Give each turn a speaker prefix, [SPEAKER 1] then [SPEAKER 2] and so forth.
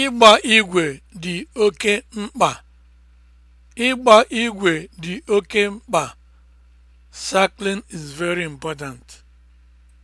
[SPEAKER 1] Ịgba igwe dị oke mkpa. Ịgba oke mkpa. Cycling is very important.